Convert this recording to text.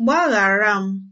Gbaghara m!